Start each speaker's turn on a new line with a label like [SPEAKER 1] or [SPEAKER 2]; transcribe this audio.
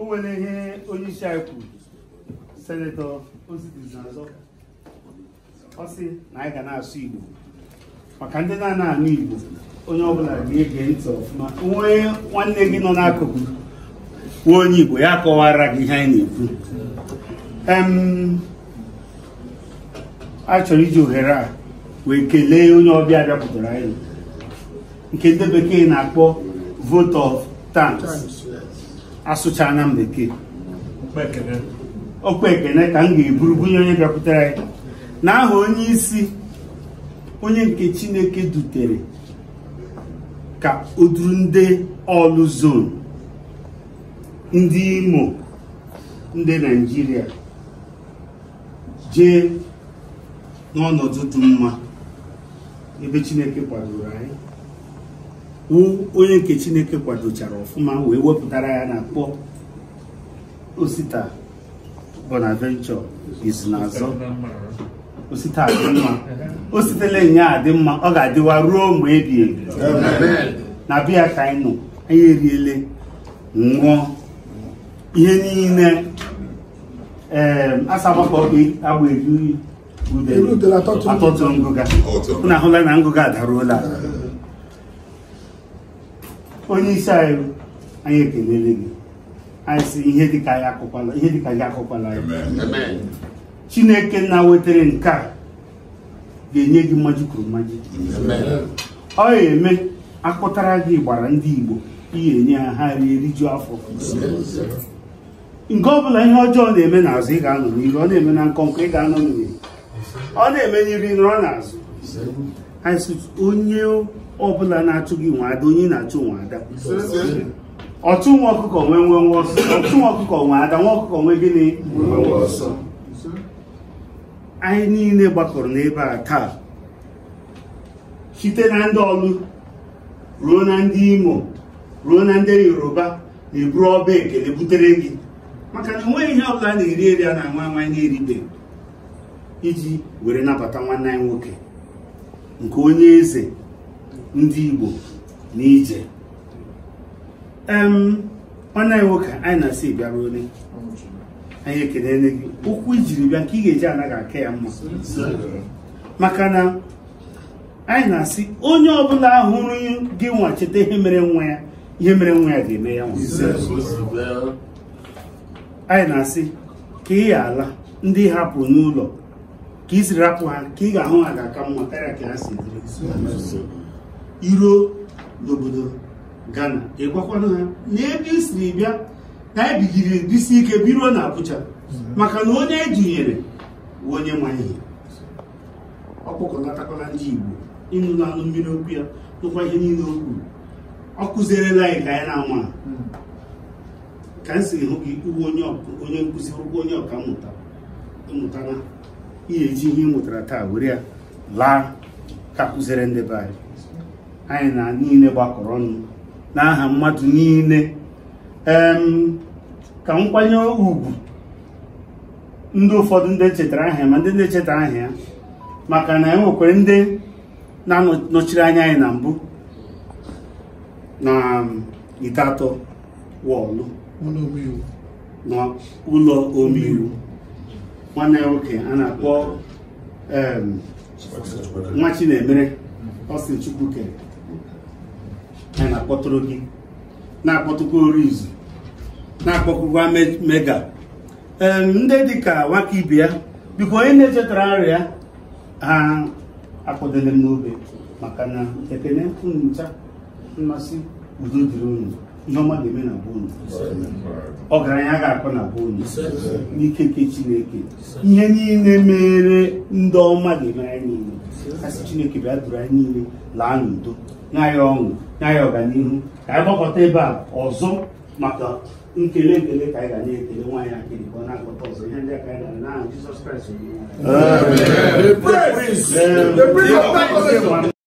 [SPEAKER 1] o nwere ihe onye isi anyị kwuru senetọ ọ sị na anyị ga na-asụ igbo maka ndị na-ana anụ igbo onye ọbụla ga-ege ntị ọfụma nwee nwanne gị nọ n'akụkụ kwuo onye igbo ya kọwara gị ihe anyị na-ekwu a chọrọ iji ohere a wee kelee onye ọbịa bịapụtara anyị nke ndị bekee na-akpọ vote of asụcha m bekee okpe ekene ka m ga-eburu bunye onye bịakwutere anyị na aha onye isi onye nke chineke dutere ka o duru ndị ọlụ zon ndị imo ndị naijiria jee n'ọnọdụ dị mma ebe chineke kwadoro anyị onye nke chineke kwadochara ọfụma wee wepụtara ya na kpọ osita bonaventure izu osita adị mma o sitele ya adị mma ọ ga-adịwa ruo mgbe ebi na biya ka anyị nọ anyị eriele ṅụọ ihe niile ee asagbakọagba eri uyi atọtụ ngụga unu ahụla na ngụga adaruola onye isi anyị anyị ekelele gị anyị sị ihe dịka ya akụkwala ihe dịka gị akụkwala ya chineke na wetara nke a ga-enye gị mmaji kwuru mmaji ọ ga-eme akpụtara gị gbara ndị igbo ihe enye ha ha eriju rijuo afọ nke ọbụla ihe ọjọọ na-eme n'azụ ị ga-anọ n'iru ọ na-eme na nkọ nkọnkọ ị ga-anọ n'iru ọ na-eme n'iru nọrọ n'azụ onye ọbụla na-achụ gị ada onye na-achụ nwe ada nwa ọkụkọ nwee nwe nwa ọsọ ọchụ nwa ọkụkọ nwe ada nwa ọkụkọ nwee gịnị anyị niile gbakọrọ n'ebe a taa site na ndị ọlụ ruo na ndị imo ruo na ndị yoruba na-eburu ọba ekele butere gị maka na enweghị ihe ọbụla na-eri eri a na nwa nwa na-eribe iji were nabata nwanne anyị nwoke nke onye eze ndị Igbo na ije nwanne anyị nwoke anyị na-asị bịara onye anyị ekelele gị okwu ijiri bịa nke ị ga-eji anaghị aka ya mma maka na anyị na-asị onye ọbụla hụrụ gị nwa cheta ihe mere nwa ya ihe mere nwa ya ga-eme ya nwa anyị na-asị ka ị ala ndị hapụ n'ụlọ ka ị siri rapụ ha ka ị ga-ahụ ha ga-aka mma karịa ka ha si iruo n'obodo Ghana ịgwakwana ha n'ebe ị siri bịa na ebigiri ebisi ike biruo na Abuja maka na onye edunyere bụ onye ma ihe ọkpọkọnatakwala ndị Igbo ịnụ anụ mmiri okwu ya nụkwa ihe niile o kwuru ọ kụzierela anyị ka anyị na-ama ka m si hụ gị onye nkụzi ụgwọ onye ọka mmụta ihe eji ihe ị mụtara taa were ya laa ka kụziere ndị be anyị anyị na niile gbakọrọ ọnụ n'aha mmadụ niile ka nkwanye ugwu ndị ụfọdụ ndị chetara aha ma ndị na-echeta aha ya maka na enwekwere ndị na-anọchiri anya anyị na mbụ na ite atọ wọlụ n'ụlọ omeiwu nwanne ya nwoke a na-akpọ nwa Chinemere Austin Chukwuke a na-akpọtụrụ gị na-akpọtụkwa Orizu na-akpọkwa mega ndị dị ka nwaka ibe ya biko onye na-echetara arịa ha akpọdele m n'obe maka na ekene ncha mmasị udo dịrị onye ihe ọma ga-eme na be ọgaranya ga-akọ na be n'ikeke chineke ihe niile mere ndị ọma ga-eme anyị niile kasị chineke bịa duru anyị niile laa n'udo nye anyị ọṅụ nye ọganihu ka anyị gbakọta ebe a ọzọ maka nkele nkele ka anyị ga na-ekele nwaanyị akịrị ka ọ na-akpọta ọzọ ihe ndị aka anyị gara n'aha Jizọs Kraịst